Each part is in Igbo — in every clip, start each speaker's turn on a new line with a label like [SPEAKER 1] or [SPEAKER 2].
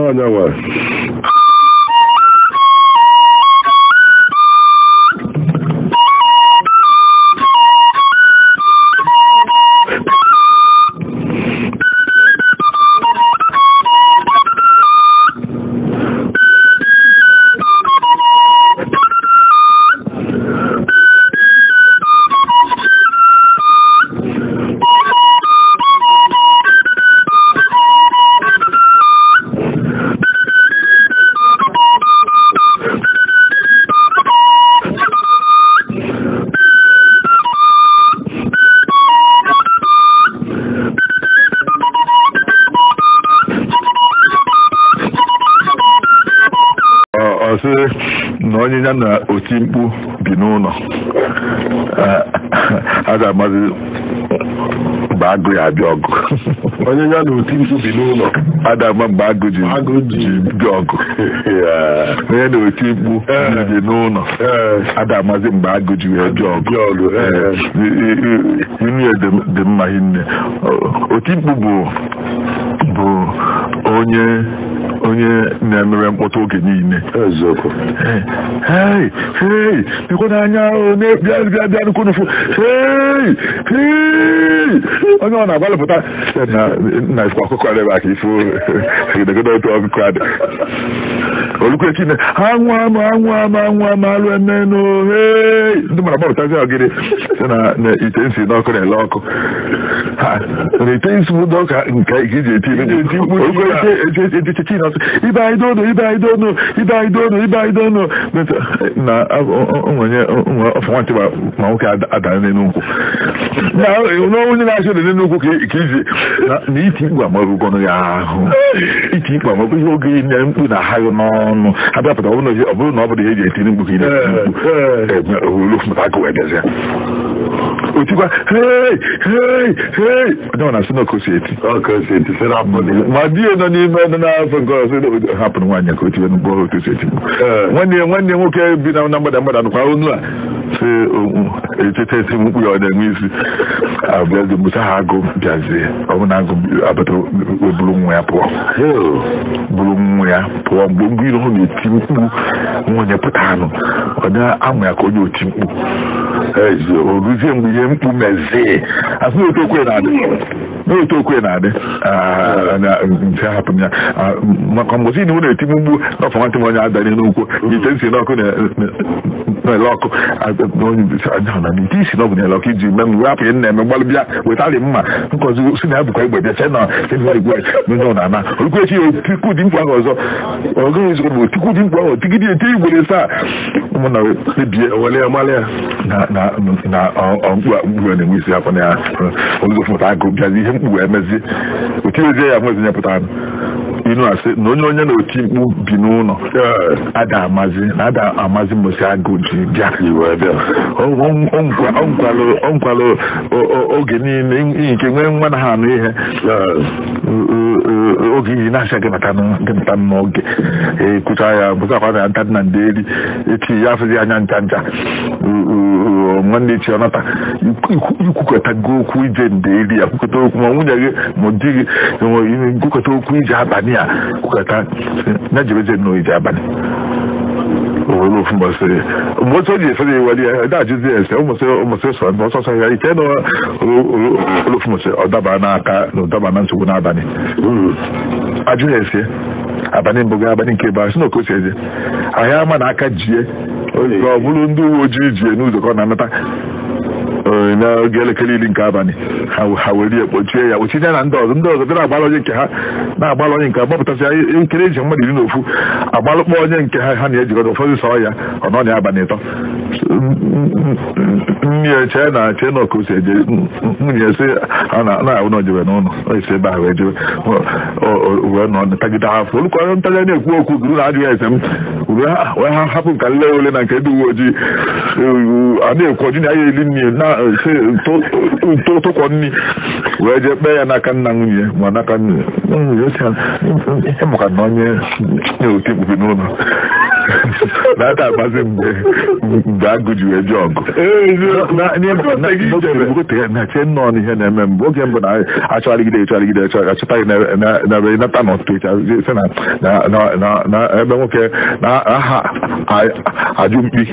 [SPEAKER 1] Oh, no way. onye ya na oti mkpu bi n'ụlọ eh, a ga-amazi mgbe agụ ya abịa ọgụ onye ya na oti mkpu bi n'ụlọ a ama mgbe agụ ji bịa ọgụ eh. onye na oti mkpu eh. bi n'ụlọ a ga mgbe agụ ji wee bịa ọgụ nwunye dị mma hinne oti mkpu bụ onye onye na-emere mkpọtụ oge niile n'anya onye ọ na-agbalịpụta na ifo ọkụkọ lebe aka ifo egedegedo otu ọkụkọ adị olukwechine anwụ ama anwụ ama anwụ ama alụ emenu ndị mara gbarụtazi ọgịrị na ite nsi n'ọkụ na-ele ọkụ Ha na ite nsi bụ ọka nke iji eti eti eti eti eti eti ibe anyị dono ibe anyị dono ibe anyị dono ibe dono na onye ọfọ nwa ma nwoke adara n'elu nkwụ na onye na-achị na n'elu nkwụ ka na iti mkpu amarụgọnụ ya ahụ iti mkpu amabụ ihe oge mkpu na ahagị n'ọnụ ha bịapụta ọ bụrụ na ọ bụrụ na ọ bụrụ ya eji etiri ị na otikwa eti. eti madie nọ n'ime ọnụ n'afọ nke ọzọ hapụrụ nwaanyị ka o tiwe n'ụgbọ eti nwanne nwanne nwoke bi na mgbada mgbada nụkwa onu a si etete esi mkpu ya ọ na-enwe isi abịazi mụta ha agụ bịazie ọ bụ na agụ abata buru nwa ya pụọ buru nwa ya pụọ mgbe mgbe iro hụ na-eti mkpu nwa pụta anụ ọ na-amụ ya ka onye oti mkpu oruzie mgbe ihe mkpu mezie asị na na-adị na na-adị mfe hapụ m ya maka mgbozi na ụlọ etinye mgbu na ọfọmatị onye adanye n'ụkwụ ite nsi n'ọkụ na-ele ọkụ ite isi na ọ isi na-ele ọkụ iji wee nna eme gbalụ bịa wetarị mma nkọzi si na ya bụkwa igbe bịa igwe n'ụlọ ana ya dị mkpu ahụ ọzọ ọgụghị zụrụ bụ otiku dị mkpu ahụ otigide ete igbere saa ụmụnna mebie ya na mkpu na-enwe isi afọ na ya ụzọ fụta agụ bịazi ihe mkpu emezi otu ezi ya mụ nwezi nyepụta anụ ilu asị na onye onye na-oti mkpu bi n'ụlọ ada amazi na ada amazi mbosi agụ ji bịa ọ nkwalụ oge niile nke nwere nwa na ha anụ ihe oge iyi na-asịa gị maka gịnịta n'oge ekwucha ya bụsa bụzakwa ya nta na ndị eri echi ya afụzi anya ncha ncha nwanne echi ọnata nata ikwukọtago okwu ije ndị eri ya kwukọta okwu ma nwunye gị ma di gị nkwukọta okwu ije abalị a kwukọta na jebeje nnọọ ije abalị owere mgbe otu o ji efere iweli ya dajụzi ese ụmụsị sọ ndị ọsọsọ ya ike na ofu mbọsị ọ daba n'aka na ụdaba na nsogbu n'abalị ajụghị ese abalị mbụ gaa abalị nke si na okosi ahịa ama na aka jie ọ bụrụ ndị uwe ojii jie n'ụzọ ka na-anata n'oge nke abalị ha were ya kpochie ya kpochie na ndị ọzọ ndị ọzọ na agbara onye nke ha na-agbara onye nke ha ekere eji mmadụ iri na ofu agbalụkpọ onye nke ha ha na-ejikọta ụfọdụ sọọ ya ọ nọ na abalị ịtọ na chee na ọkụ si eje nwunye na-ahụ n'ụlọ ebe ahụ wee nọ tagide afọ ntaja na-ekwu okwu guru na ese m wee hapụ nka nle ole na nke ndị uwe ojii a na-ekwu ọjụ na ya eli na tụkọ nri wee jee kpee ya n'aka nna nwunye ma n'aka nna ya maka na onye nye oke mkpuke n'ụlọ na-ata akpazi mgbe mgbe agụ ji wee ji ọgụ na-eche nnọọ n'ihe na-eme mgbe oge mbụ na achọgharịgide echọgharịgide echọ achọtaghị n'ebe ịnata n'ọtụtụ si na ebe nwoke na aha ajụ mkpi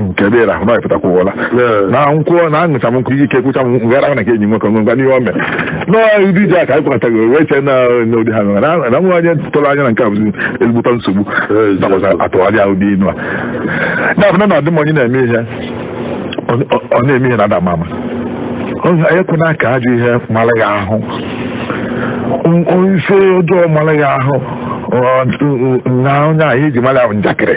[SPEAKER 1] nkebe ịra na-epụtakwa ụwọla na nkwụọ na aṅụcha m nkwụ ike m na nke enyi nwoke ngwa n'ihe o n'ụdị ji aka wee chee na ụdị ha na nwa onye tụrụ anya na nke a bụzi nsogbu egwu ahụ dị inu a na-abụ na ọdịm onye na-eme ihe ọ na-eme ihe na-ada mama ekwena ka ajụ ihe mara ya ahụ ife ọjọọ mara ya ahụ na onye ahụ iji mara ya njakịrị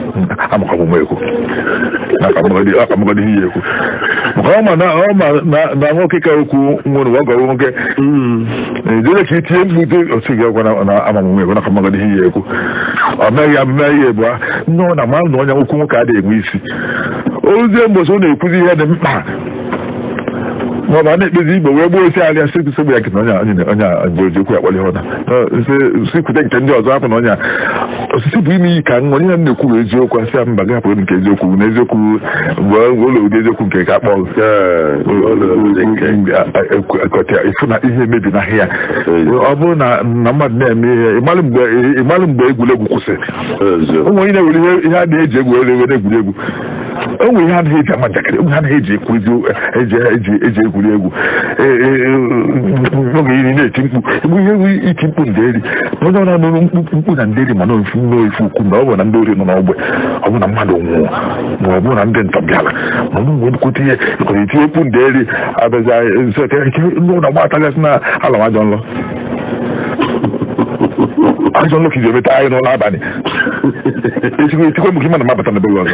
[SPEAKER 1] akamụkọbụmekwu akamụkọdị ekwu ọma na nwoke ka ejere ka itinye mkpute otu gị ọgwa na amamụmekwu mm. eh, na ekwu ọ meghị amụme ihe bụ ya ọ na mara na ọnya nwoke ka adịghị enwe isi Ozi ọ na-ekwuzi ihe dị mkpa ọ ba na-ekpezi igbo wee gbuo osi alịa nsogbu ya kịta onye onye onye njorojikwu ya kpọrọ ụda sikwute nke ndị ọzọ hapụ na onya osisi bụ ime iyi ka nwa onye na na-ekwuru eziokwu asị ya mba gị nke eziokwu na eziokwu mgbe ụlọ ụdị eziokwu nke ka akpọ e, e, ịfụ na ihe emebi na ahịa ọ bụrụ na mmadụ na-eme ihe ịmalụ mgbe egwuregwu kwụsị ụmụ onye na-ewere ihe a na-eji egwuregwu na egwuregwu onwe ihe na eji ama njakịrị onwe anaghị eji ekwuzi eji egwuri egwu e, e, e, oge iri na-eti mkpu egbu ihe ewu iti mkpu nderi onye ọra nụrụ mkpu na nderi mana ofu ukwu mgbe ọ bụ na ndị ori nọ n'ogbe ọ bụ na mmadụ nwụọ ma ọ bụ na ndị ntọ bịara mana mgbe nkwute ihe ịkọrọ itinye mkpu nderi abịaziụlọ gba atagasị na ala m na nlọ ajọ nlọ ka iji emeta anyị n'ụlọ abalị etikwe m ka ịma na mabata na be gị ọzọ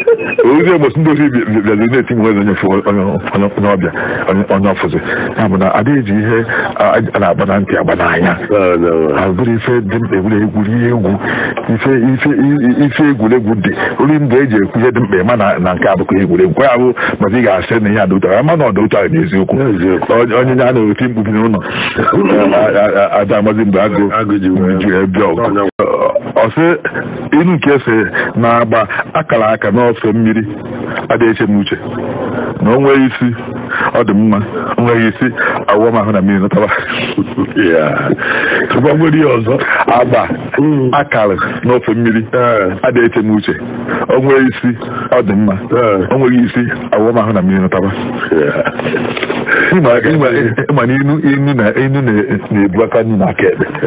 [SPEAKER 1] ozi egbosi ndị ozi bịazi na-eti nwe onye ọbịa onye ọfụzi ya bụ na ada eji ihe a na-agba na ntị agba n'anya abụrụ ife dị mkpa ebụrụ egwu ihe egwu ife egwuregwu dị olu mgbe eji ekwu ihe dị mkpa ịma na na nke abụkọ egwuregwu ya bụ mana ị ga-asị na ihe adụtara ama na ọdụ ụtara n'eziokwu onye ya na-eti mkpu bi n'ụlọ ada mazi mgbe agụ ji ebe ọgụ ọsị inu nke na-agba akara aka n'ọsọ mmiri adịghị eche na o nweghị isi ọ dị mma nweghị isi agwa ahụ na mmiri nataba ihe ọzọ agba akara n'ofe mmiri adịghị eche m uche nweghị isi ọ dị mma o nweghị isi agwa ahụ na mmiri nataba hmm. ịma na inu na inu na-ebu aka nnu na aka ekpe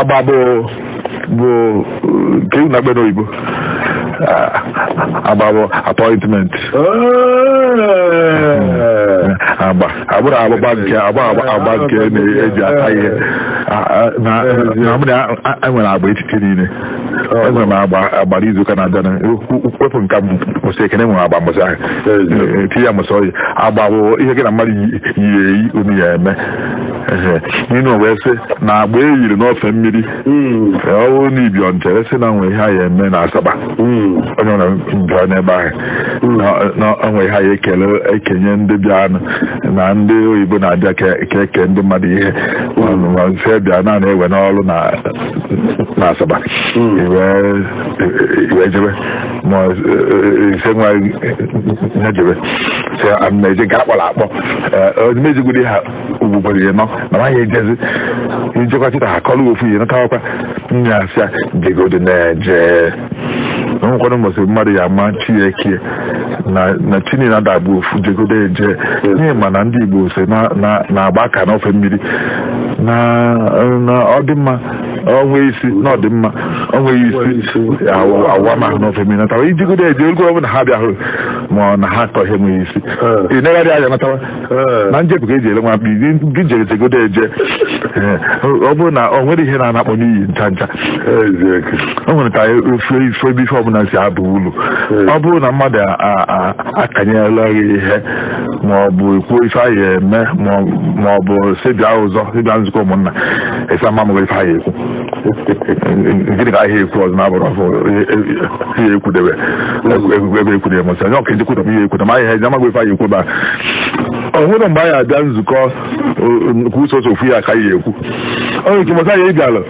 [SPEAKER 1] agba bụ bụ nke na-agba n'oyibo about appointment. Ah. Hmm. agba abụrụ agbagba nke agba agba nke na-eji ata ihe na enwere agba echiche niile oh. enwere m agba agbara izu ụka na-abịa wepụ nka mụsị ekene nwere agba mụsị ahụ e, tinye ya mụsị ọyị agba bụ ihe gị na mmadụ yiri eyi onu ya eme nínú ọ̀rọ̀ ẹsẹ̀ na agba eyiri n'ọfẹ mmiri hmm. e, ọwụ na n'ibi ọncha ẹsẹ̀ e na nwere ihe a ya eme na asaba hmm. onye ọ na n'ebe ahụ hmm. na onwe ihe a ya ekele ekenye ndị bịa na ndị oyibo na-abịa ka eke ndị mmadụ ihe se bịa naanị ewe n'ọrụ na asaba hmm. iwe jebe ma ise e, e, e, nwa ya jebe se na-eje nke akpọrọ akpọ mejigoro ha ugbugbodo ihe nọ na nwaanyị ejezi ijekwa chịta ha kọrọ ofu ihe nọtawakwa nnya asịa jegodo na-eje na ụfọdụ mbọsị mmadụ ya ama chieke na chini na-adagbu ofu jegodo eje n'ihi ma na ndị Igbo se na na na ka n'ofe mmiri na na ọ dị ọdịmma onwe isi na ọ dị ọdịmma onwe isi awa ma n'ofe mmiri natawa ijegodo eje oge ọ bụla ha bịahụrụ ma na ha ihe enweghị isi ị negharị anya natawa na njepụ ka eji ele nwa mkpi gị jere jegodo eje ọ bụrụ na ọ nwere ihe na-anakpọ n'iyi ncha ncha o nwere ka ofe ife ebe ife ọ ọbụla si aba ulu ọ bụrụ na mmadụ akanyela gị ihe maọbụ kwuo ife anyị eme maọbụ si bịa ụzọ ịbịa nzukọ ụmụnna esi ama m ife anyị ekwu gịnị ka ahịa ekwu ọzọ na-abụrụ afọ ihe ekwudebe ebe ekwudebe mụsị onye ọka ejikwuta ihe ekwuta ma ihe amagwụ ife anyị ekwu ebe a ọhụrụ mgbe anyị abịa nzukọ nke usoso ofu ya ka ihe ekwu onye nke mụsị anyị ịbịalụ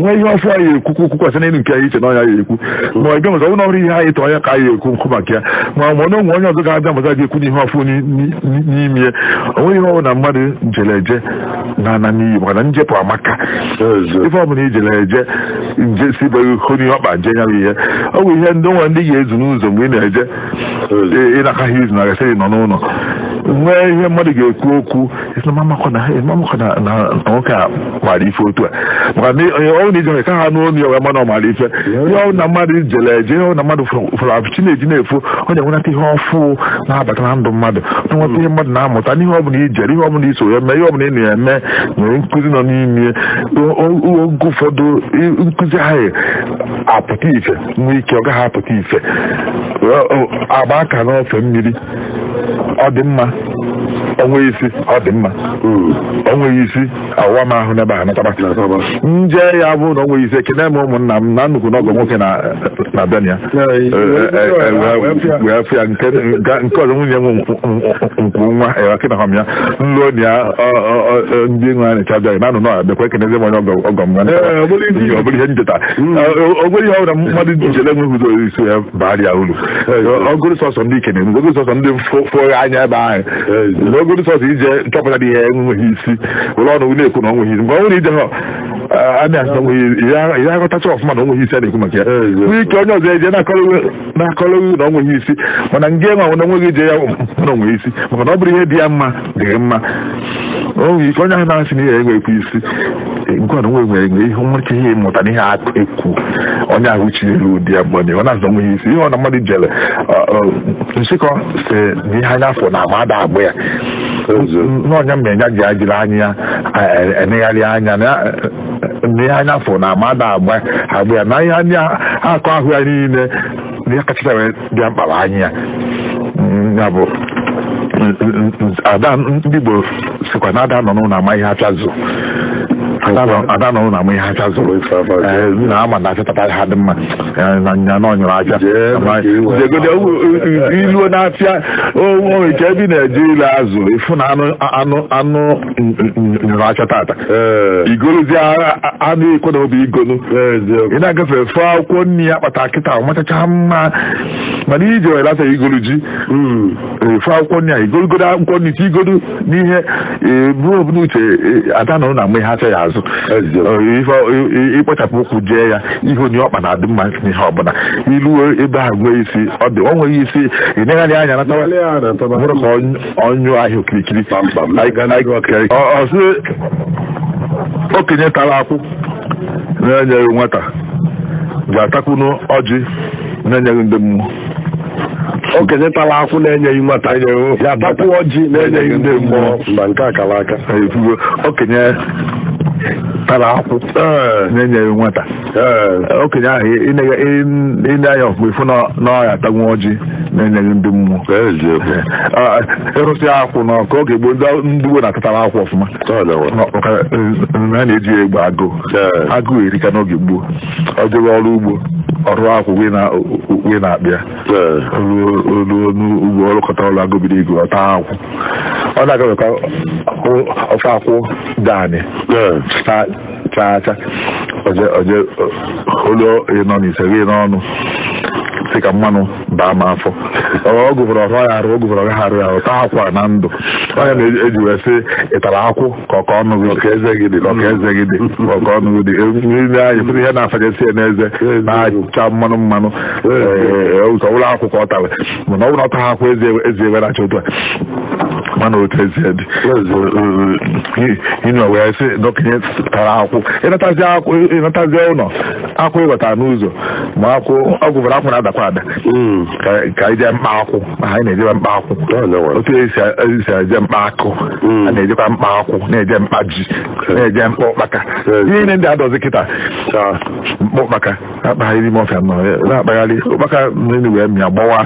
[SPEAKER 1] nwe ihe ọsọ anyị ekwukwu okwu kwasị n'elu nke ya iche na ọnya ya ekwu ma ọ gaghị ọbụna ọrụ ihe anyị tọ ya ka anyị ekwu nkwu maka ya ma ma ọ na-enwe onye ọzọ ga-abịa maza gị ekwu n'ihe ọfụ n'ime ya onweghị ihe ọ bụla mmadụ jere eje na ana n'iyi maka na njepụ amaka ife ọbụla ijere eje nje si bụ hụ n'ihe ọkpa nje ya bụ ihe ọ bụ ihe ndị nwa ndị ga-ezu n'ụzọ mgbe ị na-eje ịnaka ha izu na gasị nọ n'ụlọ nwee ihe mmadụ ga-ekwu okwu eh, nwoke a mara ife otu a maka na ọnwụ na ijere ka ha n'onu ya wee mana ọmara ife ihe na mmadụ jere eje ihe na mmadụ fụrụ afụchi na-eji na-efu onye nwenata ihe ọfụ na-abata na ndụ mmadụ nwata ihe mmadụ na-amụta n'ihe ọ ijere ihe ọ bụla iso ya mee ihe ọ ị na-eme nwere nkụzi nọ n'ime oge ụfọdụ nkụzi ahụ e, apụta ife nwee ike ọ gaghị apụta ife agba aka n'ofe mmiri ọ dị mma Thank you. onweghị isi ọ dị mma hmm. onweghị isi awụwa m ahụ n'ebe a nataba nje ya bụ na onweghị isi ekene m ụmụnna m na nnukwu n'ọgọ nwoke na bịa ya wee fịa nke ọzọ nwunye m nkwụ nwa ewakinahọ m ya nluo na ya ndị nwe a na-echa bịa na anụ nọ bekwa ekenezi m onye ọgọ m ọ bụrụ ihe njeta o nwere hmm. ihe ọbụla mmadụ njele enweghị ụzọ isi ya baara ya uru ọgụrụ sọsọ ndị ikene ogụrụ sọsọ ndị fụrụ anya ebe ahụ agụrụ sọsọ ije nchọpụta dị ihe enweghị isi were ọnụ na-ekwu na onweghị isi mgbe ọ ije ha na ihe aghọtacha ọfụma na onweghị isi a na-ekwu maka ya onye ọzọ eje na-akọrọ na onweghị isi mana nga enwe na onweghị ije ya na onweghị isi maka na ọ bụrụ ihe dị ya mma dịrị mma onwe ike onye ahụ na-asị na ihe enwekwu isi nke ọ na nwe nwere ihe nwere ihe ịmụta ihe ekwu onye ahụ chinyere ụdị ya ọ nweghị isi ihe na mmadụ jere nsịkọ si na ihe anya afọ na ama ada ya na ọnya mgbe ya ji ajiri anya ya enegharị anya n'ihe anya fụ na amada agba agba ya na ihe anya akọ ahụ ya niile na kachasị kacha wee bịa mkpara anya ya bụ ada ndị Igbo sikwa na ada nọ n'ụlọ ama ihe apịazụ ada na ụlọ m ihe acha zụrụ na ama na achatata ha dị mma na nya na ọnyụrụ acha iluo na-apịa onwe ike ebe na-eje ile azụ ịfụ na anụ anụ nyụrụ acha tata igolozie anụ ikwe na obi igonu ị na-agafe fe akwụkwọ nri ya kpata kịta machacha mma mana iji were lata igolu ji hmm. efu akwụkwọ nri a igologodo akwụkwọ nri ka igodo n'ihe e, bụrụ obụla uche e, ada nọrụ na mgbe ha ya azụ ịkpachapụ e, ụkwụ jee ya ihe onye ọkpa na-adị mma n'ihe ọbụla iluo ebe ahụ nwee isi ọ dị ọ nweghị isi ị anya anya bụrụ ka ọnyụ ahịa okirikiri okenye tara akwụ na-enyeghị nwata ga-atakwunu ọjị na-enyeghị ndị mmụọ okenye tara akwụ na-enyeghị nwata ya takwuo ji na-enyeghị ndị mmụọ mba nke akara aka okenye tara afụfụ na-enyere nwata okenye ahụ ịnye anya ọfụma ifu n'ọhịa tanwu ọjị na-enyeghị ndị mmụọ ịrụsị akwụ na ọkụ oge gboo ndị gbo na-atatara akwụ ọfụma e, e, e, a na-eji egbe agụụ agụụ erika n'oge gboo ọ jụrụ ọrụ ugbo ọrụ akwụ wee na-akpịa ruo n'ugbo ọrụkọta ọrụ agụ ego igu ọta akwụ ọ na-agawekwa ofe akwụ daanị chaa acha oje olu ịnọ n'isere ịnọ n'ọnụ si ka mmanụ baa m afọ ọ gụbara ọha ya arụ ọ gụbara ọha arụ ya ụta akwa na ndụ onye na-eji wee sị ịtara akwụ ka ọka ọnụ gị ka eze gị dị ka eze gị dị ọka ọnụ gị dị niile anyị bụrụ ihe na-afanyesi ya n'eze na-acha mmanụ mmanụ ụzọ ụlọ akwụ ka ọ tara mana ọ bụrụ ọta ha akwụ ezi ebe na-acha otu a mana otu ezi dị inu wee sị dọkịta tara akwụ ịnatazi ụlọ akwụ ịghọtara n'ụzọ ma akwụ ọgwụbara akwụ na-adakwa ada hmm. ka anyị e jee mkpa akwụ ma anyị na-ejebe mkpa akwụ otu esi eje mkpa akụ a na-ejekwa mkpa akwụ na-eje mkpa ji na-eje mkpa ụkpaka niile ndị adọzi kịta mkpa ụkpaka akpagharị n'ime ọfịa nọ na-akpagharị ụkpaka mmiri wee mịa gbawa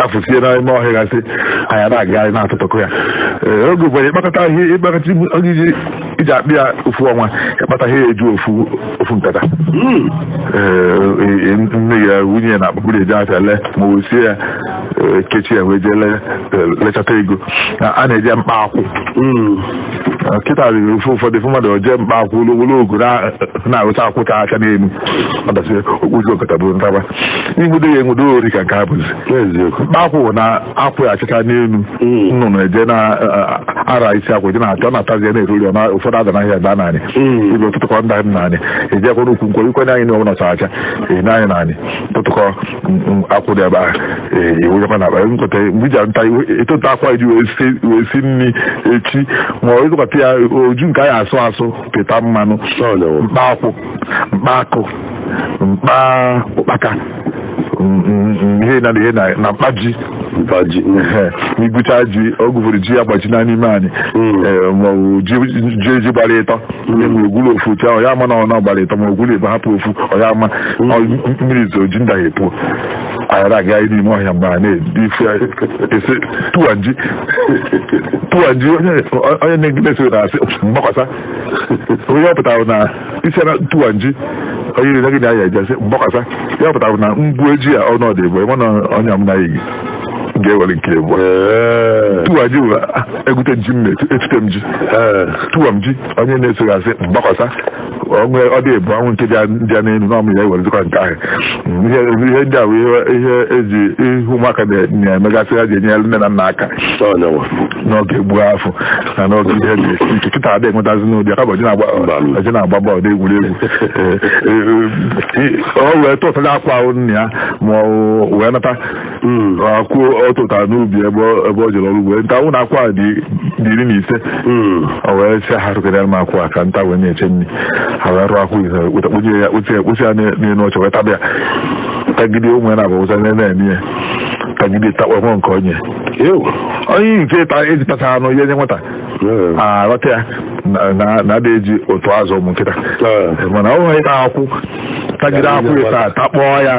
[SPEAKER 1] dafusie na ime ọhịa gasị anya na-agagharị na ya oge ụbọchị ịkpakọta ihe ịkpakọta ọgịgị ija akpị ofu ọnwa ya kpata ha eju ofu nkata hmm. eh, nne ya nwunye ya na akpapụrụ eje ahịa lee ma o sie ya kechi ya wee jee lechata ego a na-eje mkpa akwụ nkịta riri ofe ụfọdụ ife mmadụ oje mkpa akwụ ogologo na-arụcha akwụ ka aka n'elu ọdazi okpuzi okọta bụ ntaba ihudo ya enwudo ori ka nke a bụzi mkpa akwụ na akwụ ya achịcha n'elu nnụnụ eje na ara isi akwụ je na-achọ na-atazi ya na-erori ya n'ofe ụfọdụ aga n'ahịa gaa naanị ụlọ ụtụtụkọ ndị anyị naanị ejekwara ukwu nkwo ikwenye anyị na ọbụla anyị naanị anyị tụtụkọ akwụ dị ebe ahụ ewonyekwa na akpa nkọta mgbe nta akwa iji wee si echi ma ọ ya oju nke anyị asụ asụ pịta mmanụ mkpa akwụ mkpa akụ mkpa ụkpaka ihe na-adịghị na mkpa ji Mkpa ji ọ gụfere ji ya gbachi na n'ime anyị maọbụ ji eji gbara ịtọ ogwuru ofu oche ahụ ya ama na ọ na gbara ịtọ e ma ogwuru ebe mm. hapụ ofu ọ ya ama mmiri zo ji ndaghị epuo anyara aga n'ime ọhịa mgbe a na-eji ife esi tụwa ji tụwa ji onye na-egide esi na-asị mgbakwasa onye ọ pụtara na isi ara tụwa ji onye na-egide anya eji asị mgbakwasa ya pụtara na ngwu eji ya ọnọdụ ebe ịma na ọnya m na-eyi ga-ewere nke bụ tuwa ji ụra egwute ji m etute m ji tuwa m ji onye na-esoghị asị mgbakwasa onwe ọ dị ebu anwụ nke dị n'elu n'ọmụ ya ewerezikwa nke ahụ ihe ndị a bụ ihe eji ihe ụmụaka na-emegasị ha ji enyere nne na nna aka n'oge gbuo afọ na n'oge ihe dị esi ike kịta ada enwetazi n'ụdị aka bụ oji na-agba bọọlụ egwuregwu ọ wee tụtara akwa ahụ nna ya ma ọ wee nata akwụ ọ n'ubi ebe ọ jere ọrụ ugbo nta nwụ na akwa dị iri na ise ọ hmm. wee si ha rụgara m akwa ka nta wee na-eche nri ha wee rụọ akwa ize kponye ya kposi ya kposi ya n'elu ọchọ wee taba ya tagide ụmụ ya na abụwụsa na-eme ya tagide takpakwa nke onye onye nke ejitacha anụ ya nye nwata hmm. aghọta ya na na adịghị eji otu azụ ụmụ nkịta hmm. mana ọ hụghị ka akwụ tagide akwụ ịsa takpọọ ya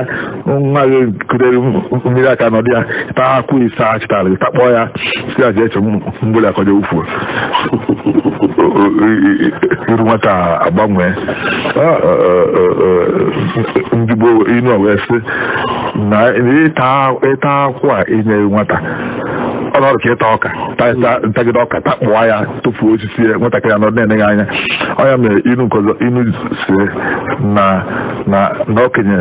[SPEAKER 1] nwa gị kudere mmiri aka nọdụ ya taa akwụ ịsa achịtara gị takpọọ ya si aja eche mgbere akọja ufu iru nwata agbanwe ndigbo inu wee sị na ịta akwụ a inyeghị nwata ọ nọrụ ka ịta ọka ntagide ọka takpụọ ya tụfuo osisi nwatakịrị anọ na-enyeghị anya ọ ya mere inu nkọzọ inu sie na na Nokine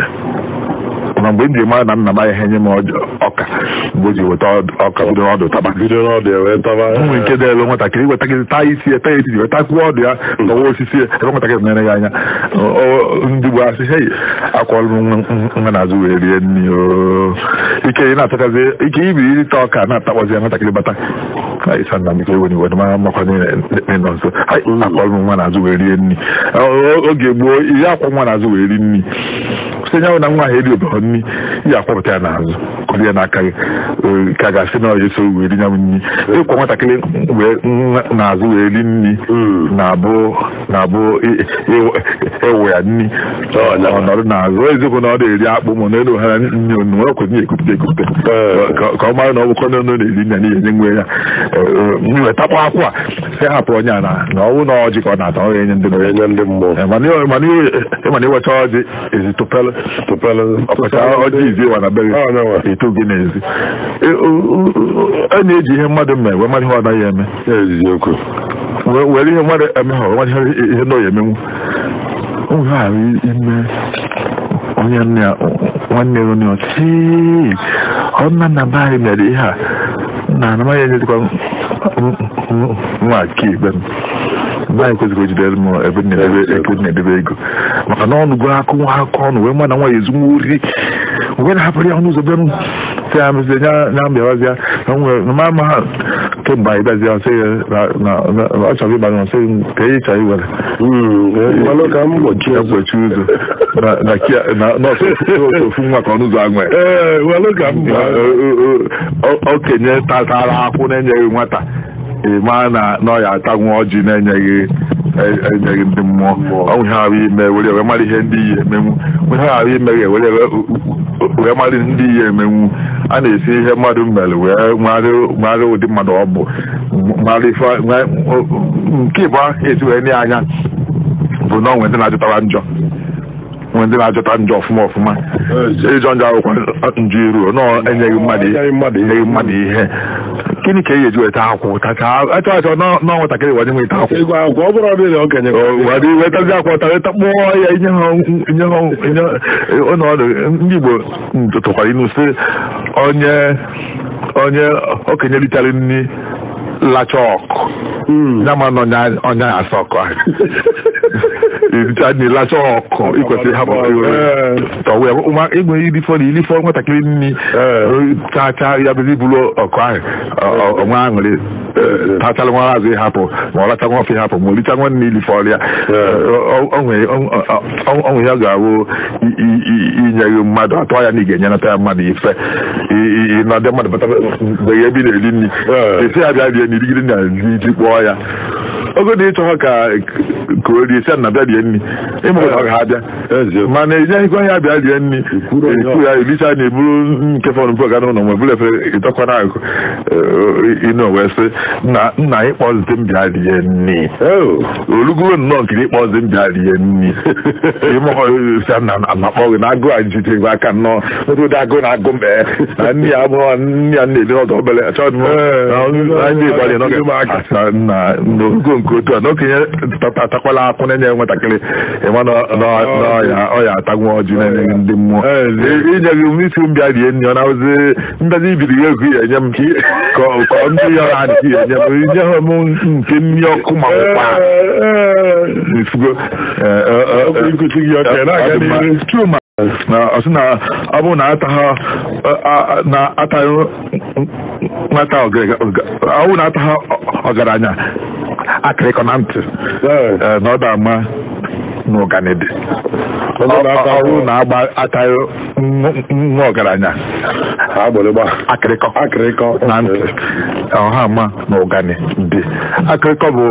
[SPEAKER 1] makana mgbe m ji mara na nna m anaghị enye m ọka mgbe o ji weta ọka bido n'ọdụ taba ụmụ nke dịele nwatakịrị iwetakịrị taa isi ete etiti wetakwuo ọdụ ya tọwa osisi ebe nwatakịrị nere ya anya ndị bụ asị hei m nwa na-azụ wee rie nri ike ị na-atakazi ike ibi ịrịta ọka na-atakwazi ya nwatakịrị bata isa nna m ike iwe n'iwe mara makwa nọ nso akwọlụ nwa na-azụ wee rie nri oge gboo iri akwa nwa na-azụ wee ri sị nyanwụ na nwa ahụ eri obeghọ nri ya akwapụta ya n'azụ akụzi na aka gị ka ga-asị eh, na so wee ri nyanwụ nri ịkwa nwatakịrị e wee n'azụ wee ri nri na-abụ ịwụ ya nri ọnọdụ n'azụ na ọ na-eri akpụ mụ na-elu ha nri ka ọ mara na ọ bụkọ na ọ na-eri nri n'ihe nye nwe ya eh, eh, wetakwa akwa a hapụ onye a na na ọ na-ata ọ ga ndị mmụọ mana ọjị ezi na na-eto gị n'ezi e, a na-eji ihe mmadụ mere wee mmadụ ihe ọ anaghị eme were ihe mmadụ emegha wee ihe na ọ ya emenwu nghara ime onye nwanne ya onye ọchị ọnna nna be mere ihe a na anamaghị enyezikwa nwa aka ikpe m nwaanyị kwesịrị ejidere m ebe na-edebe ego maka na ọnụgo akụ nwa aka ọnụ wee mma na nwaanyị ezu mgbe uh, hmm, na-apụrụ ya n'ụzọ be m sị ya msị na-abịawazịa na nwere ma ama ha kemgbe anyị bịazi sị ya na ọ chọrọ ịgbana sị ka e chọrọ iwere gbochi ụzọ n'ofu nwa ka ọnụ ụzọ anwe okenye tatara akwụ na-enyeghị nwata ịma na nọ ya atanwu ọjị na-enyeghị enyeghị ndị mmụọ ọnwụ ha ghara ime were ewe mara ihe ndị iyi emenwu nwe ha ghara ime ga ewere wee mmadụ ndị ya emenwu a na-esi ihe mmadụ mere wee nwere ụdị mmadụ ọ bụ nke ịbụ esi wee nye anya bụ na onwe ndị na-ajụtara njọ ndị na-ajọta njọ ọfụma ọfụma ịjọ njọ ahụkwa njọ iru na enyeghị mmadụ ihe gịnị ka e ji eji weta akwụ tacha achọ achọ n'ọnwa ntakịrị wanye nweta akwụ ọ bụrụ ọdịrị okenye wadị wetazi akwụ ọta weta kpụọ ya inye ha inye ha ọdụ ndị Igbo tụkwara inu si onye onye okenye richara nri lacha ọkụ nyama na ọnya asa ọkụ ahụ ịlacha ọkụ ikwesịrị nwatakịrị chacha ya ọkụ ahụ ọnwa eh, aṅụrị eh, tachala nwa azụ ịhapụ ma ọ lacha nwa ọfụ ịhapụ ma olicha nwanne ilifọ ọrịa eh. onwe ya ga mmadụ ya na ị ga ya mmadụ ife ịnọdị mmadụ bata na-erigide na nri jikpọọ ya ogode ịchọ ha ka kurodisia na bịa rie ịmụ ịmụrụ ha abịa mana ejeghịkwa ya bịa rie nri ekwu ya elisa na-eburu nke fọrọ mpụ ọgana ụlọ mebụrụ efere ịtọkwana akụ inu eh, wee sị nna nna ịkpọ zite m bịa rie nri oh. olugoro nnọọ nkiri ịkpọ zi m bịa rie nri ịmụsa na anakpọ gị na agụụ ajite gị aka nnọọ ụdị agụ na agụ mbe na nri ya bụrụ nri ya na-ele ọdọ obere achọghị m eh, na ndị ịgbalị nọ nke otu a na okenye atakwala akwụ na-enye nwatakịrị ịma na ọya atagwu ọjị na ndị mmụọ inyeghị m isi mbịa rie nri ọ na-awụzi mbazi ibiri ya ego ya enye m ka ndị ya ọra nke enye m inye ha m nke ọkụ ma ụkwa ọsị e, e, e, na ọ bụrụ na na-ataghị nwata ọgaranya akịrịkọ na ntị na ọ ga-ama n'ọganidi ọrụ na-agba ataghị nwa ọgaranya akịrịkọ na ntị ọha ama na ụgani dị akịrịkọ bụ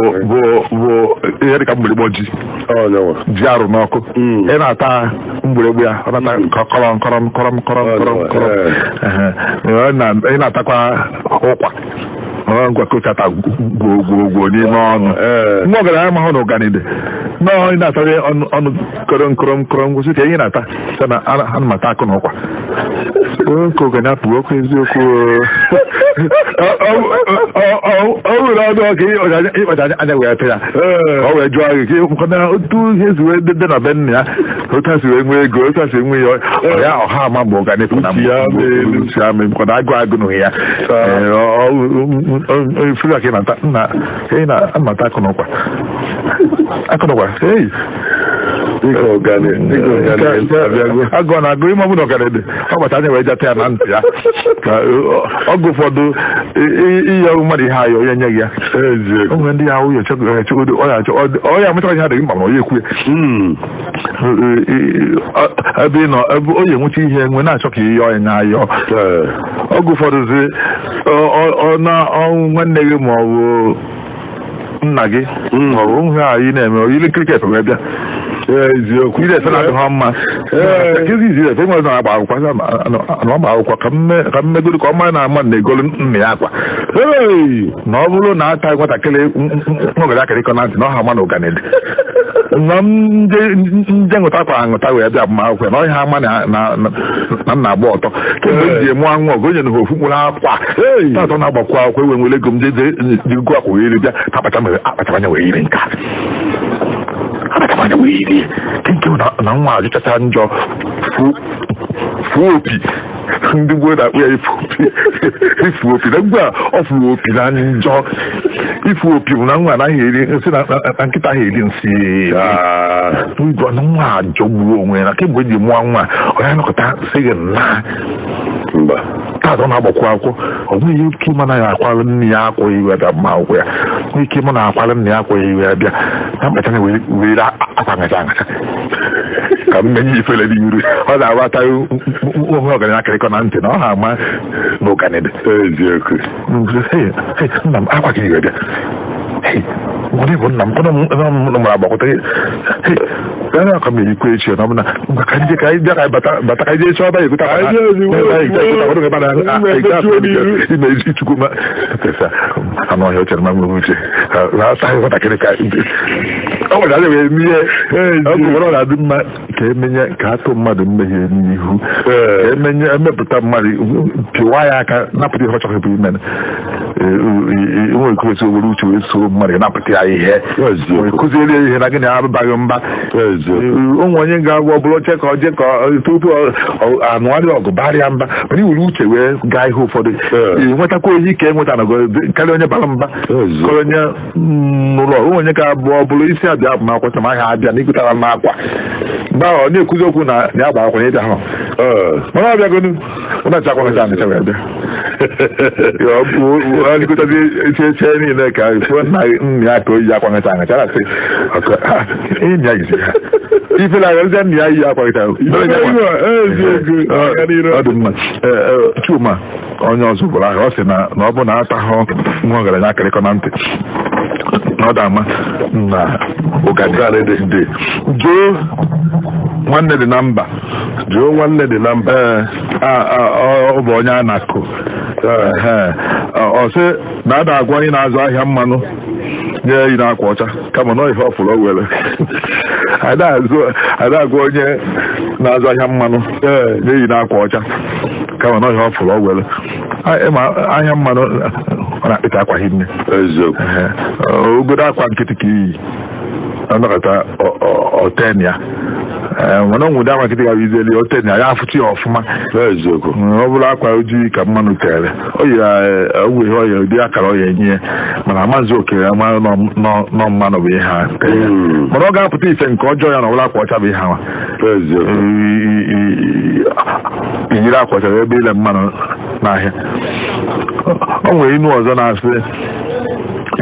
[SPEAKER 1] ihe dịka mgbịrịgba ji ji arụ n'ọkụ mm. ị na-ata mgbịrịgba ya ọ na-ata mm. kọrọm kọrọm kọrọm kọrọm kọrọm kọrọm ị na-atakwa ụkwa ngwakọta gwogwogwo n'ime ọnụ eh. nwa ọgaranya amahụ na ụganide nọọ na-ataghe ọnụ kọrọ nkọrọ nkọrọ ngwụsị ka ihe na-ata sị na ana m akụ na ụkwa nwoke Oganapụ okwu eziokwu o nwere ọdụ ọka ịkpata anya wee pịa eh. ọ wee jụọ gị kwụkọtara otu ihe si wee dị na be nna ya otu a si wee nwee ego otu a si nwe ya ọha ama bụ na amị agụ agụ ya furu aka ịnata akụnụkwa akụnụkwa agụ na agụ ime ọbụla ọgara dị ọgbacha anya wee jata ya na ntị ya ka ọgụ ụfọdụ iyi ọgụ mmadụ ihe ayọ onye nye gị ya onwe ndị ahụ ya ahụ ya ọ ya chegodo ya mechakwa ihe adịghị mkpa ma ya ekwu ebe ị nọ ebe onye enwecha ihe enwe na-achọ ka ihe ọya na-ayọ ọgụ ụfọdụ na ọnụ nwanne gị ma ọ bụ nna gị mm. ọrụ nhụ a ị na-eme oyili kriket wee bịa eziokwu irefe na adịghị mma irefe nwere na agba akwụkwọ na ọgba akwụkwọ ka mmegoro ka ọ mara na ama na egolu nna ya akwa na ọ bụrụ na ata nwatakịrị nwogere akịrịkọ na ntị na ọha ama na ụganedị ndị nụtakwara anụta wee bịa agbamakwụkwọ na ọhịa ama na m na-agba ọtọ kemgbe m ji mụọ nwa ọgụ o nyere ha ofu mkpụrụ akwa atọ na-agbakwa akwụkwọ iwe nwere ego m je jigo akwa wee iri bịa akpacha akpachamanya wee iri nka akpachamanya wee iri nke na nwa ajụchacha njọ fuo opi ndị gboo na-akpụ ya ifu opi na mgbe a ọ fụrụ opi na njọ ifu opi bụ na nwa anaghị eri nsị na nkịta ahụ eri nsị ngọ na nwa jọgburu onwe ya na kemgbe eji mụọ nwa ọ ya anọkọta sị gị na mba taata ọ na-agbakwa akwụkwọ ọ nweghị ike ịma na ya akwara nne ya akwụghị iwe bịa ma akwụkwọ ya nwe ike ịma na akwara nne ya akwụghị iwe ya bịa na mkpata na were akpa ngacha ngacha ka m menye ifele dị iru ọ ga-aghọta ohe ọgaranya akịrịkọ na ntị na ọ ha ama n'ụkanịdị eziokwu nna m akwa ka iwe bịa ọ dị bụ nna m kpọrọ m mara agbakwụta ka ce na muna kan je kai da ka ai ka so ni ina ji na mu ce na ka da ne ni e aku wala da ma ke menye ka to ma dum me he ni hu ke menye me buta mari ti waya ka na pudi ho chokhe bu men e wo ko so wo lu ti so mmadụ na pudi ai he wo ko ze le na onwe onye ga-agwa ọ oche ka oje ka tupu anụgharị ọgụ barịa mba mana iwere uche wee gaa ihe ụfọdụ nwetakwa oyi ka e nwetanago karịa onye bara mba karịa onye n'ụlọ mm, onwe onye ka abụọ ọbụla isi abịa ma akwụcha ma aha abịa na ikutara m akwa mgbe ahụ ọ na-ekwuzi okwu na ya gbara akwa na ịdị ahụ mana ọ bịagonu ụnachakwanacha anacha wee bịa alikụtazi echeche niile ka fụọ nna ka o yi akwa ncha ncha ya ife na agazi nna ya yi akwa ncha ọ dị mma Chuma onye ọzọ bụrụ aha ọ sị na ọ bụ na atahụ nwa ọgaranya akịrịkọ na ntị ọ na a ọsị na a na-agwa onye na-azụ ahịa mmanụ nye eyi na akwa ọcha kama na ihe ọfụrụ were a na-agwa onye na-azụ ahịa mmanụ nye eyi na akwa ọcha kama na ihe ọfụrụ were ahịa mmanụ ọ na-akpịta akwa hinne ogodo akwa nkịtị ka iyi anabata ọten ya mana ọ nwụde ama kịta izeli ote na ya afụta ya ọfụma eziokwu ọ bụrụ akwa ojii ka mmanụ kere owuhe ọya ụdị akara ọya enye ya mana amazi okere amaghị nọ mmanụ bụ ihe ha mana ọ ga-apụta ife nke ọjọọ ya na ọbụla akwa ọcha bụ ihe ha iyiri akwa ọcha ebe ile mmanụ n'ahịa o nwere inu ọzọ na-asị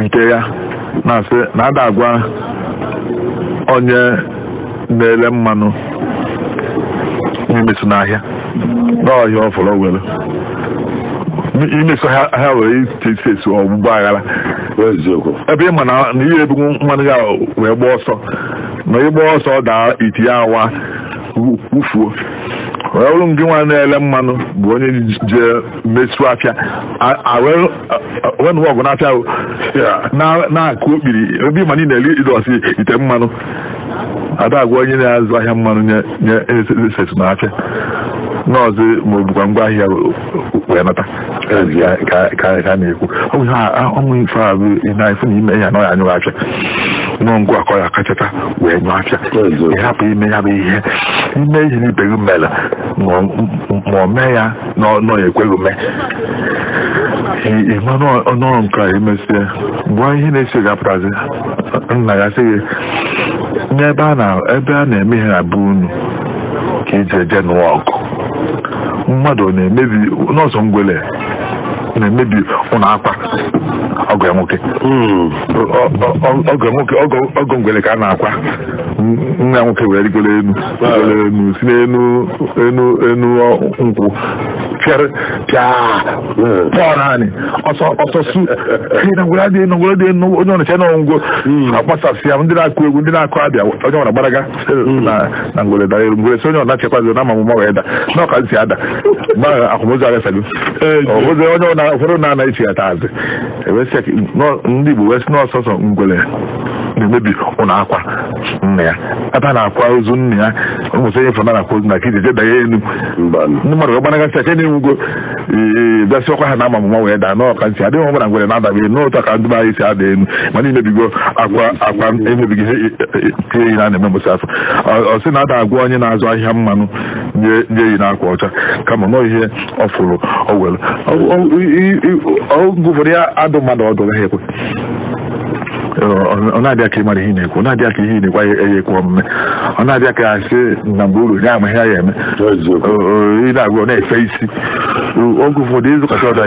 [SPEAKER 1] nke ya na-asị na ada agwa onye na-ele mmanụ imeso n'ahịa n'ọhịa ọ fọrọ were imeso ha were esi ọgbụgba aghara ebe ị ma na ihe ebu mmanụ ya wee gbaa ọsọ na gbaa ọsọ daa iti ya awa wufuo wee nke nwa na-ele mmanụ bụ onye je mesu afịa wenu ọgụ n'afịa na-akụ okpiri obi ma niile eri idosi ite mmanụ ada agwa onye na-azụ ahịa mmanụ nye esesu n'afịa nọọsụ ma ọ bụkwa ngwa ahịa wee nata ka a na-ekwu ọnwụ ife a bụ na-efu na ime ya nọghị anyụghị afịa nọọ ngwa akọ ya kachata wee nyụọ afịa ịhapụ ime ya bụ ihe ime ihe na ibe gị mere ma o mee ya nọ ya ekweghị mee ịma nọọ nke a emesie mgbe ihe na-esi gapụtazi nna ya sịghị n'ebe a na-eme ihe na be unu ka eji eje nụọ ọkụ mmadụ na-emebi n'ọzọ ngwele na-emebi ụlọ akwa ọgọ ya nwoke hmm. ọgọ ngwere ka a na-akwa nwa nwoke wee rigoro elu elu si n'elu enu enu nkwụ pịa naanị ọsọ su onye ọnịcha na ngwo hmm. akpasasị ya ndị na-akụ egwu ndị na-akụ abịa onye ọra gbaraga hmm. na ngwere dara elu ngwere si onye ọna chekwazi na ma mụma wee da na ọka si ada gba akwụmozu agasago onye ụfọdụ na-anaghị chi ya taazị ndị Igbo wee sị na ọsọsọ ngwere na-emebi ụlọ akwa nne ya ata na-akwa ozu nna ya ụmụsị onye fana na-akwa ozu na ka ije danye elu ndị mmadụ ọgbanagasị aka na-enwugo dasị ọkwa ha na ama mụma wee daa n'ọka ntị adịghị ọbụla ngwere na-adabere n'otu ka ndị anyị si ada elu mana imebigo akwa akwa emebigo ihe eyi e, e, a na-eme mbụsị afọ ọ sị na ada agwa onye na-azụ ahịa mmanụ nye yi na-akwa ọcha kama nọ ihe ọ fụrụ ọ ya adụ mmadụ ọdụ gaghị ekwe ọ na-abịa ka ịmara ihe na-ekwu na-abịa ka ihe na-ekwu ya ekwu omume ọ na-abịa ka asị na mgbe uru ya ama ihe ya eme ị na-agụ na-efe isi oge ụfọdụ ịzụ kacha ọda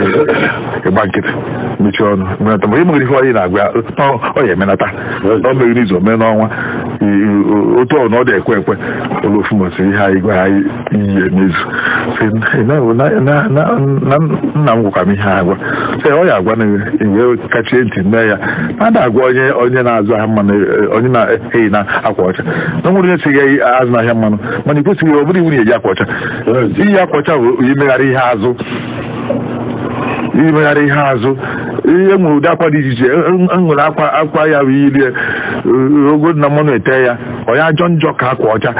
[SPEAKER 1] ịgba nkịtị mechie ọnụ ịmegara ihe ọ yị na-agụ ọ ya emenata o meghere izu omee n'ọnwa otu ọ na ọ dị ekwe ekwe olofumasi ihe anyị gwa anyị iyi emezu nna m gwụkwa m ihe agwa ee ọ ya agwa na iwe e, e kachie ntị mee ya a na-agwa onye onye na-azụ ahịa mmanụ e, onye na-eyi na akwa ọcha na nwere onye sighị azụ n'ahịa mmanụ mana ị kwesịghị ọ bụrụ iwu na-eji akwa ọcha iyi akwa ọcha bụ imegharị ihe azụ imegharị ihe azụ e nwere ụdị akwa dị iche iche eh, eh, nwere akwa akwa ya wee rie ogo na mmanụ ete ya onye eh, ya ajọ njọ ka akwa ọcha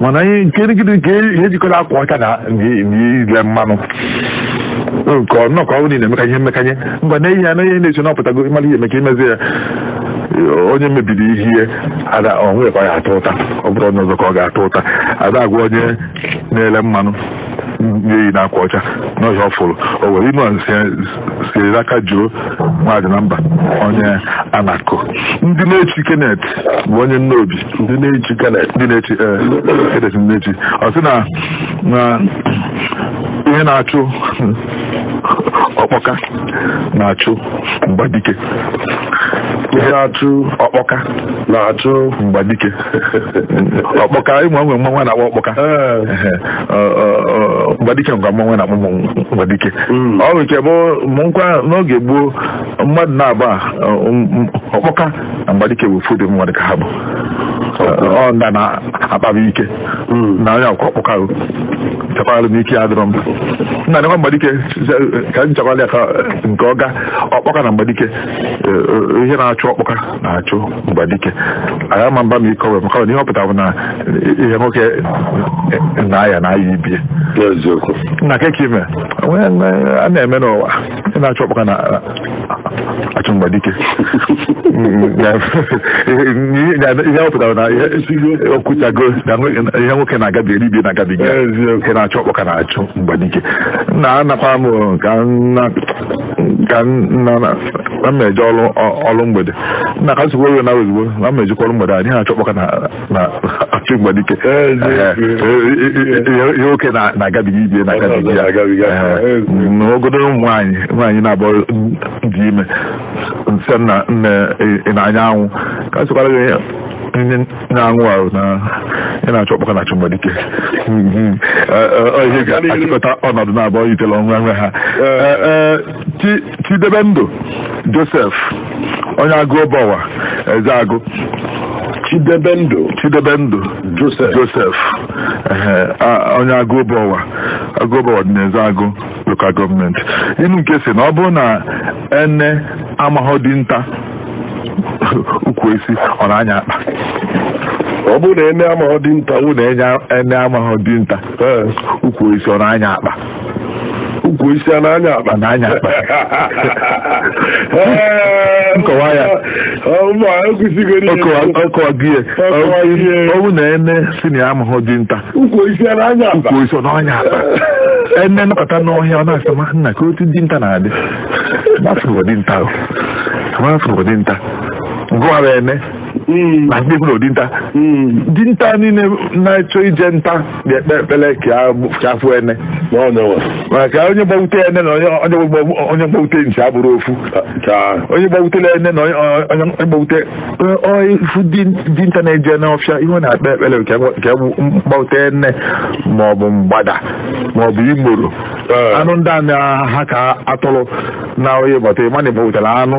[SPEAKER 1] mana nkiri nke ihe jikọrọ akwa ọcha na ile mmanụ nke ọnọ ka ọ bụrụ na emekanye mmekanye mba na ihe anaghị na-eso n'ọpụtago ịmara ihe maka imezi ya onye mebiri ihe ada onwekwa ya atọ ụta ọ bụrụ ọnụ ọzọ ka ọ ga-atọ ụta ada agwa onye na-ele mmanụ eyi na-akwa ọcha n'ọhịa ọfụrụ o were ime aka jụrụ nwaanyị na mba onye a ndị na-echi kenet bụ onye nnobi ndị na kenet ndị na-echi kenet eh, ndị na-echi ọ sị na ihe na-achụ ọkpọka na-achụ mgbadike na-achụ ọkpọka na-achụ mgbadike ọkpọka ịmụ nwe mmanwe na akpọ ọkpọka mgbadike nke mmanwe na akpụmụ mgbadike mm. ọ bụ nke bụ nkwa n'oge gboo mmadụ na-agba ọkpọka na mgbadike bụ foto mmadụ ka ha bụ ọ nda na-akpabi ike mm. na onye ọkpọka na n'ike ya dịrọ m nna nịkwa Mgbadike ka m chakwalụ ya ka nke ọga ọkpọka na Mgbadike eh, eh, ihe na-achụ ọkpọka na-achụ Mgbadike agha ma mba m ịkọwe maka na ihe ọ bụ na ihe nwoke na-aya na aya ibie nna ka ime a na-eme n'ụwa ihe na-achụ ọkpọka na-achụ Mgbadike ihe ọ pụtara na o kwuchago na ihe nwoke na-agabi eribi na-agabiga ihe na-achọ ọkpọ ka na achọ mgbanike nna anakwa m ka na mmeje ọrụ mgbede nna ka nsogbu oge na ozugbo na mmejikwa ọrụ mgbede na achọ ọkpọ ka na achọ mgbanike ihe nwoke na-agabiga ibe na-agabiga n'ogodo ụmụ nwaanyị nwaanyị na-abụ dị ime site na anyanwụ ka a sịkwara gị ndị na-aṅụ ahụ na ị na-achọ ọkpọka na chụmadike ihe ga-achịkọta ọnọdụ na-abụọ yitela ọnwa nwe ha chidebe ndụ josef onye agụ bọwa eze agụ Chidebendo. Chidebendo chidebe ndụ josef josef onye agụ bọwa agụ bọwa dị n'eze agụ lokal gọọmenti inu nke si na ọ bụrụ na ene amaghọ dị nta ukwu esi ọ na-anya akpa ọ bụrụ na ene amaghọ dị nta ọ bụrụ na ene e e e amaghọ dị nta ukwu esi ọ na-anya akpa ukwu isi a na-anya akpa na-anya akpa nkọwa ya Ọ ọwụ na ene si na ya amaghọ dị nta ukwu isi ọ na-anya akpa ene nabata n'ọhịa ọ na-asị ma nna ka otu dinta na-adị mafụrụ dinta mafụrụ dinta gụwara eme Hmm. Hmm. na ndị dinta dinta niile na-achọ ije nta ga-ekpe ekpere ka afọ ene maka onye gbawute ene na onye onye gbawute nchi abụrụ ofu onye gbawutela ene uh. ah, na onye gbawute ifu nta na-eje n'ọfịa ihe na-akpe ekpere ka egbu mgbawute ene maọbụ mgbada maọbụ igboro anụ ndị a ha ka atụrụ na onye bọta ịma na ịgbawutela anụ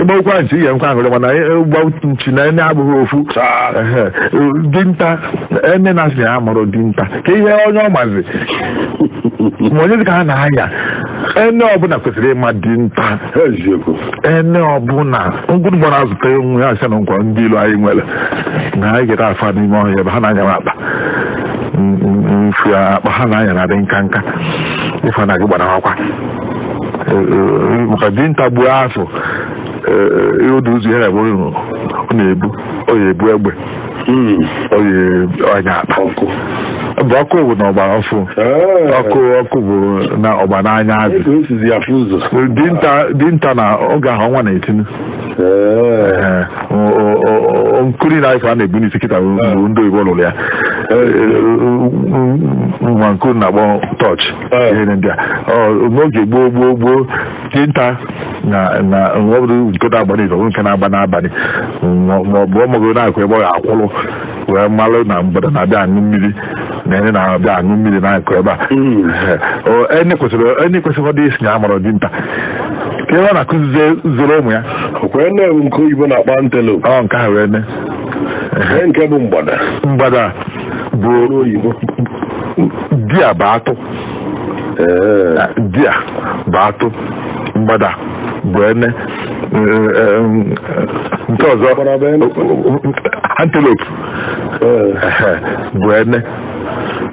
[SPEAKER 1] ịgbawukwa nchi ị ga-enwekwa ahụrụ mana ịgbawute nchi na ene abụghị ofu dinta ene na-asị ya mụrụ dinta ka ihe onye ọmazi ma onye dị ka ha na-anya ene ọbụla kwesịrị ịma dinta ene ọbụla ngwụrụ gbara azụta nwe ya asị na nkwa ndị ilu anyị nwere na anyị gere afa n'ime ọhịa ebe ha na-anya akpa mfu akpa ha na-anya na dị nka nka ife na gị gbara akwa maka dinta gbuo afọ ụdụ ụzọ ya na-abụrụ ọ na-ebu hmm. ọ ya-ebu egbe ọ ya-anya akpa bụ ọkụ bụ na ọgbara ọfụ ọkụ ọkụ bụ na ọgbara anya azụ dinta na oge ahụ ọnwa na-etinu nkuri na ife a na-ebu n'isi kịta bụ ndị oyibo lụrụ ya nwa nke na-akpọ tọch eh. n'oge gboo gboo gboo dinta na nwa ọbụrụ nke na-agbalị ọbụrụ nke na-aba n'abalị ma ọ bụ ọmụgụ na-akụ ebe ọ akwụrụ wee malụ na mgbada na-abịa aṅụ mmiri na enye na-abịa aṅụ mmiri na-akụ ebe a hmm. enyi kwesịrị kwesịrị ọdị isi na amụrụ dinta ka ebe ọ na-akụzie zoro ụmụ ya kwee na nke oyibo na-akpa antelope ọ nke ha wee ne nke bụ mgbada mgbada bụ olu oyibo dia bụ atụ eh. ah, dia bụ atụ mgbada bụ eme eh, nke ọzọ antelope eh. bụ eme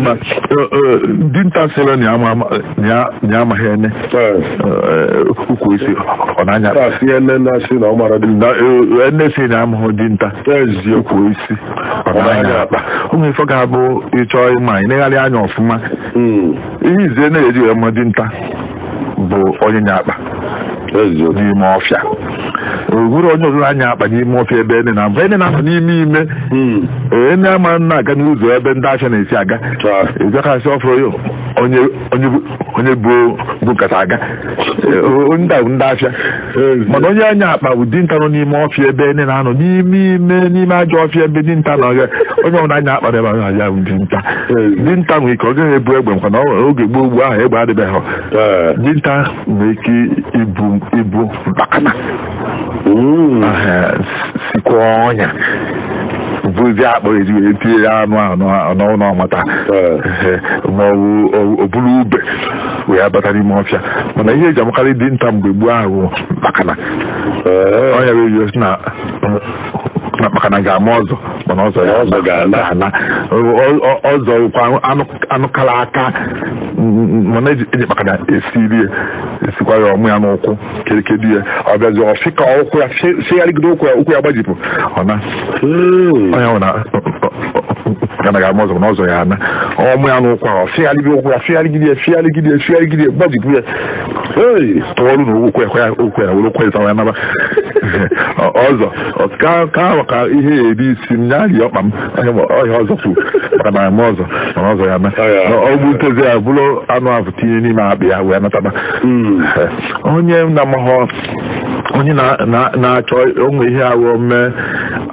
[SPEAKER 1] ma eh, eh, dinta sịrị nya amaghị eh. ene ụkwụ isi ọ na si na dị na ene si na amụghị dinta ukwu isi ọ na akpa ụmụ ife ga-abụ ịchọ ịma ịnegharị anya ọfụma ihe hmm. izie na-eji eme dinta bụ onye nya akpa ezo n'ime ọfịa ogwuru e onye ọzọ anya akpa n'ime ọfịa ebe ene na mfe ene na-akpa n'ime ime hmm. e ene ama na-aga n'ụzọ ebe ndị afịa na-esi aga ezekasị ọfụrụ onye onye onye bụ nkata aga e, ndị ahụ ndị afịa mana onye anya akpa bụ dinta nọ n'ime ọfịa ebe ene na-anọ n'ime ime n'ime ajọ ọfịa ebe dinta nọ onye ọbụla anya akpa ebe ahụ ya bụ dinta dinta nwere ike ọ gaghị ebu egbe nkwa na oge gboo ugbu ahụ egbe adịbeghị dinta nwere ike ibu ebu bakana sikwa ọnya bụzi akpọ etinyere anụ ahụ n'ụlọ ọmata ma ọ bụ oburu ube wee bata n'ime ọfịa mana ihe njem karịa dị nta mgbe gboo ahụ bakana ọnya bụ na maka na ga-ama ọzọ mana ọzọ ya ọzọ gara ala ọzọ kwa anụkala aka mana eji e maka na esirie esikwa ya ọmụ ya n'ụkwụ kedu ya ọ bịazi ọfị ka ụkwụ ya segharịgide ụkwụ ya ụkwụ ya gbajipụ ọ na hmm. onye maka na ga-ama ọzọ na ọzọ ya ana ọmụ ya n'ụkwụ ahụ fịgharịgị ụkwụ ya fịgharịgide ya fịgharịgide ya fịgharịgide ya gbajipụ ya ee tụọrụ na okwu ekwe ya okwu ya were okwe ịsawa ya naba ọzọ ka ahụ ka ihe ebi isi m ya ọkpa m ọhịa ọzọ kwuru maka na ama ọzọ na ọzọ ya na ọ bụ ntezi ya bụrụ anụ ahụ tinye n'ime akpị ya wee nataba onye na-amaghị onye na-achọ onwe ihe awụ mee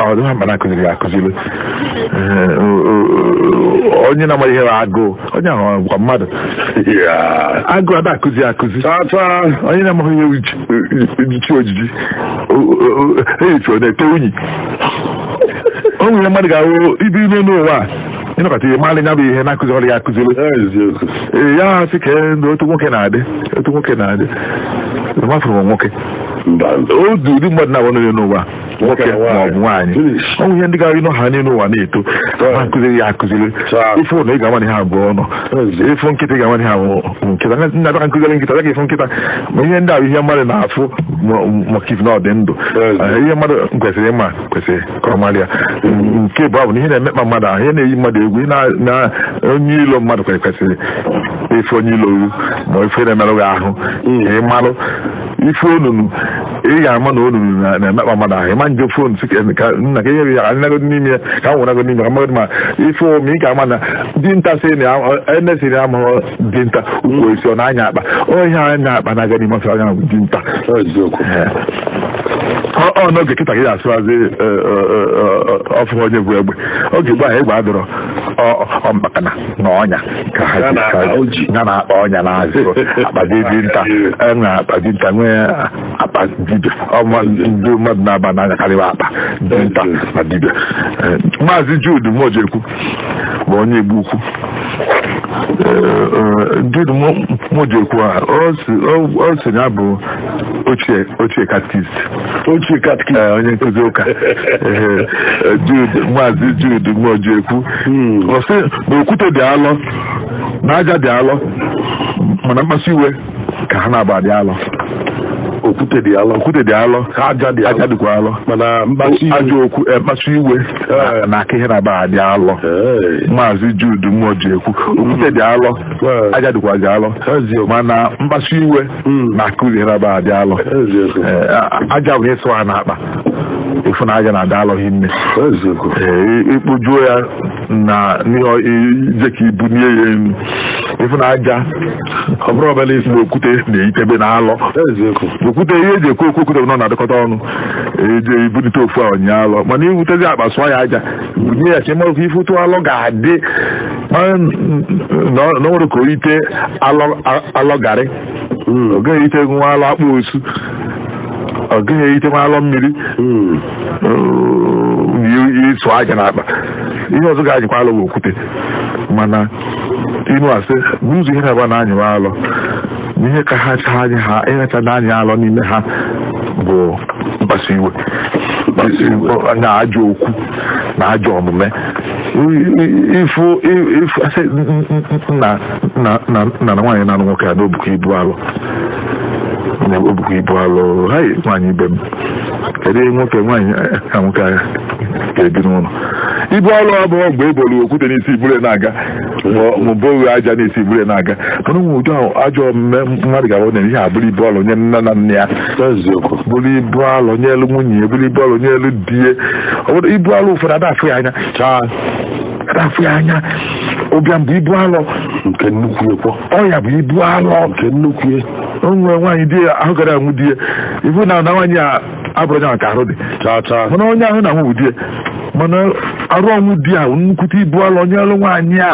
[SPEAKER 1] ọdụha mana akụziri ya akụziri onye na-amara ihe agụ onye ahụ gwa mmadụ agụ ada akụzi akụzi onye na-amaghị ihe ujichi ojiji eyichi ọ na-ete unyi onwe ihe mmadụ ga-ahụ ibi ime n'ụwa ịnọkọta ihe mmadụ nya bụ ihe na-akụzi ọrụ ya akụziri ee ya sị ka e, otu nwoke na-adị otu nwoke na-adị mafụrụ m nwoke o juru mmadụ na-agwa n'onye n'ụwa nwoke ma ọ bụ ihe ndị gara ha niile ụwa na-eto ha akụziri ya akụziri ife ụlọ ị ga-ama ihe abụọ ọnụ ife nkịta ị ga-ama ihe abụọ nkịta nna aka nkụziri nkịta agaghị ife nkịta ma ihe ndị a ihe mmadụ na-afụ maka ife na ọdị ndụ ihe mmadụ kwesịrị ịma kwesịrị ka ọ ya nke bụ abụ na ihe na-emekpa mmadụ ahụ ihe na-eyi mmadụ egwu na onye ilo mmadụ kwesịrị ife onye ilo iwu ma ife na-emerụ ahụ ịmalụ ife onunu ị ga-ama na onunu na-emekpa mmadụ ahụ anjo fon ka na ke yewi al na ni mi ka wona ko ni mi ma ma il e faut mi ka na dinta se ni ene se ni amo dinta ko e na anya ba o ya akpa ba na ga ni mo so anya dinta ọ n'oge kịta gị asụazi ọfụ onye bụ egbe oge egbe a egbe adọrọ maka na ọnya ka ha ya na akpa ọnya na azụ akpa nta na akpa nta nwee akpa dibịa ọma ndị mmadụ na-aba n'anya karịa akpa nta na dibịa e, maazị Jude Mojekwu bụ onye Igbo ukwu did a, eh, eh, hmm. ọ sị ya bụ ochie katkist ochie katkist onye nkuzi ụka maazị jud mojekwu ọ sị na okwute dị alọ na aja dị alọ mana mmasị iwe ka ha na-aba dị alọ okwute dị alọ okwute dị alọ aja dị aja dịkwa alọ mana ajọ okwu eh, mkpachi iwe ah. eh, na aka ihe na-aba adị alọ maazị Jude mmụọ ji ekwu okwute dị alọ aja dịkwa gị alọ mana mkpachi iwe hmm. na aka ihe na-aba adị alọ eh, aja bụ ịsụ ha n'akpa efu na aja na-ada alọghị nne ịkpụjuo ya na n'ihe ije ka ibunie ya elu efu na aja ọ bụrụ obele isi na okwute na-eyitebe na alọ okwute ihe eji ekwu okwu okwute bụ na-adịkọta ọnụ eje ibulite ofu a ụnyaahụ mana iwutezi akpa sụọ ya aja bunye ya chima ofe ifutu alọ ga-adị n'ọrụ ka oite alọ garị hmm. ọ ite nwa alọ akpa osu ọ gaghị ite nwa alọ mmiri hmm. ịsụ aja akpa ihe ọzọ ga-ajikwa alọ bụ okwute mana inu asị n'ụzọ ihe na-aba na anyịwa alọ n'ihe ka ha chọrọ anyị ha ịracha naanị alọ n'ime ha bụ mkpasu iwe na ajọ okwu na ajọ omume ifu na nwaanyị na-anụ nwoke a n'obukọ ibu alụ obukọ ibu alụ ha nwaanyị ibe m kedu nwoke nwaanyị eh, ka nwoke agha ga-ebi n'ụlọ ibu ọrụ ọ bụ mgbe e okwute n'isi ibure na-aga mụbụrụ aja n'isi ibure na-aga mana ụmụ ụdị ajọ mme mmadụ gara na ihe abụrụ ibu ọrụ nye nne na nna ya bụrụ ibu alụ nye elu nwunye bụrụ ibu alụ nye elu die. ya obodo ibu alụ ụfọdụ adafụ ya anya adafụ ya anya ụbịam bụ ibu alụ nke nnukwu ekwo ọya bụ ibu alụ nke nnukwu o nwere nwaanyị di ya ahụ gara anwụ di ibu na na nwaanyị a abụrụ ya maka arụ dị mana onye ahụ na nwụ bụ di mana arụ ọnwụ di a nnukwute ibu ala onye ọrụ nwaanyị a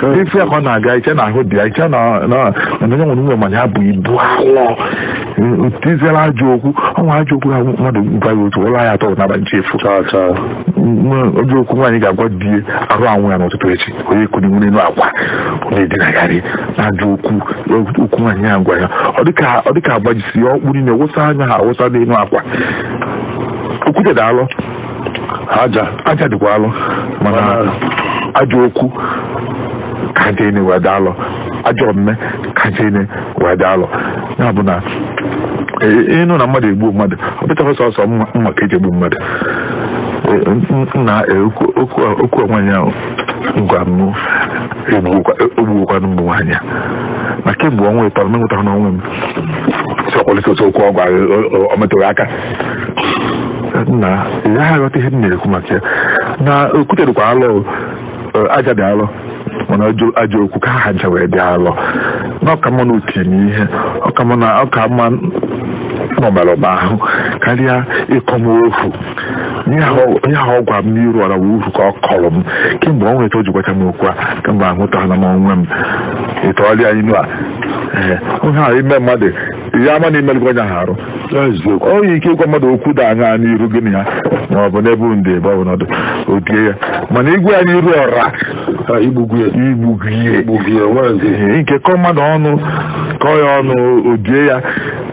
[SPEAKER 1] hmm. efe ọ na-aga iche na ahụ dị ya iche na onye nwere nwe manya bụ ibu alọ tizela ajọ okwu ọnwa ajọ okwu ha mmadụ gwa ya otu ụlọ ya atọ na nche efu oge okwu nwaanyị ga-agwa di arụ anwụ ya n'ụtụtụ echi onye kuni nwere elu akwa onye dị na-ajọ okwu okwu nwaanyị ya ngwa ya ọ dịka agbajisi ọkpụ niile wụsa anya ha awụsa n'elu akwa okwute daalụ aja aja dịkwa alụ mana aja okwu ka jene wee dị alụ ajọ omume ka jene wee dị alụ ya bụ na e, e, ịnụ na mmadụ egbu mmadụ ọ bụchaghị sọsọ mma ka eji egbu mmadụ e, na okwu onwe ya ngwanụ ogbuokwanụ mbụ nwaanyị ya na kemgbe ọnwa ịtọrọ m enwetaghị n'onwe m si ọkwalite otu okwu ọ gwara ọ metụghị aka na ya eh, ha aghọta ihe m na-ekwu maka ya na okwute dịkwa alụ aja dị alụ mana ajọ okwu ka ha ncha wee dị alụ na ọka mụ na okenye ihe ọka mụ na ọka mma n'ọbalọba ahụ karịa ịkọ m ofu onye ahụ ọ gwa m n'iru ọra wee uru ka ọ kọrọ m kemgbe ọ nwere ete o jikwacha m okwu a kemgbe ahụtara m onwe m ịtọrị anyị nụ a ee onye ahụ ime mmadụ ya ama na imelụgwa nya ha arụ onye ike ịgwa mmadụ okwu da anya n'iru gịnị ya ma ọ bụ n'ebe ndị ebe ọ nọdụ oke ya mana igwe ya n'iru ọra igbugbugie nke kọ mmadụ ọnụ kọọ ya ọnụ odie ya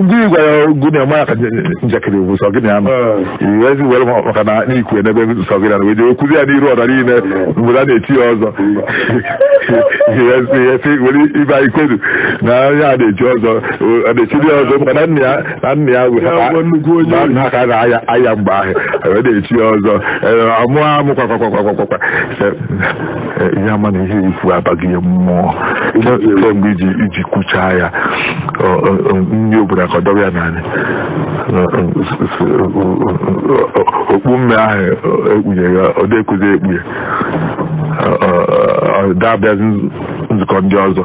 [SPEAKER 1] gịnị gwara gụnị ama ya ka njakịrị bụ sọ gịnị anụ iwezi were maka na n'ikwe n'ebe sọ gịnị anụ wee kwuzi ya n'iru ọda niile mgbe a na-eti ya ọzọ were ibe ikodu na onye a na-eji ọzọ a na-echiri ya ọzọ maka na nna ya na nna ya ha ka na-aya aya mgbe ahụ wee na eti ya ọzọ amụ amụ kwakwakwakwakwa ihe ama na ihe ikwu abaghị mmụọ kemgbe iji kwuchaa ya ndị obodo ya ka ọ dọba ya n'ala okpu mme ahụ ekpunyere ọ dịkụzi ekpu ya dabịazi nzukọ ndị ọzọ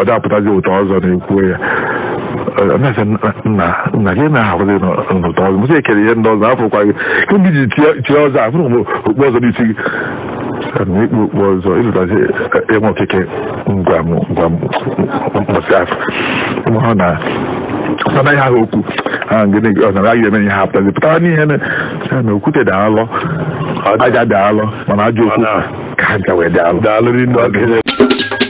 [SPEAKER 1] ọ dapụtazi ụtọ ọzọ na-ekwuo ya nna gị na-ahụrụ gị ekere ihe ndị ọzọ afụkwa gị ndị ji tie ọzọ afụrụ m okpu ọzọ iche gị na ikpe okpu ọzọ ịzụtazi enwe okike ngwamgwamkpọsị afọ ọ na anaghị aha okwu ọnaraghị eme ihe ha pụtazi pụtara n'ihe na okwute daalụ aja daalụ mana ajọ okwu ka ha ja wee daalụ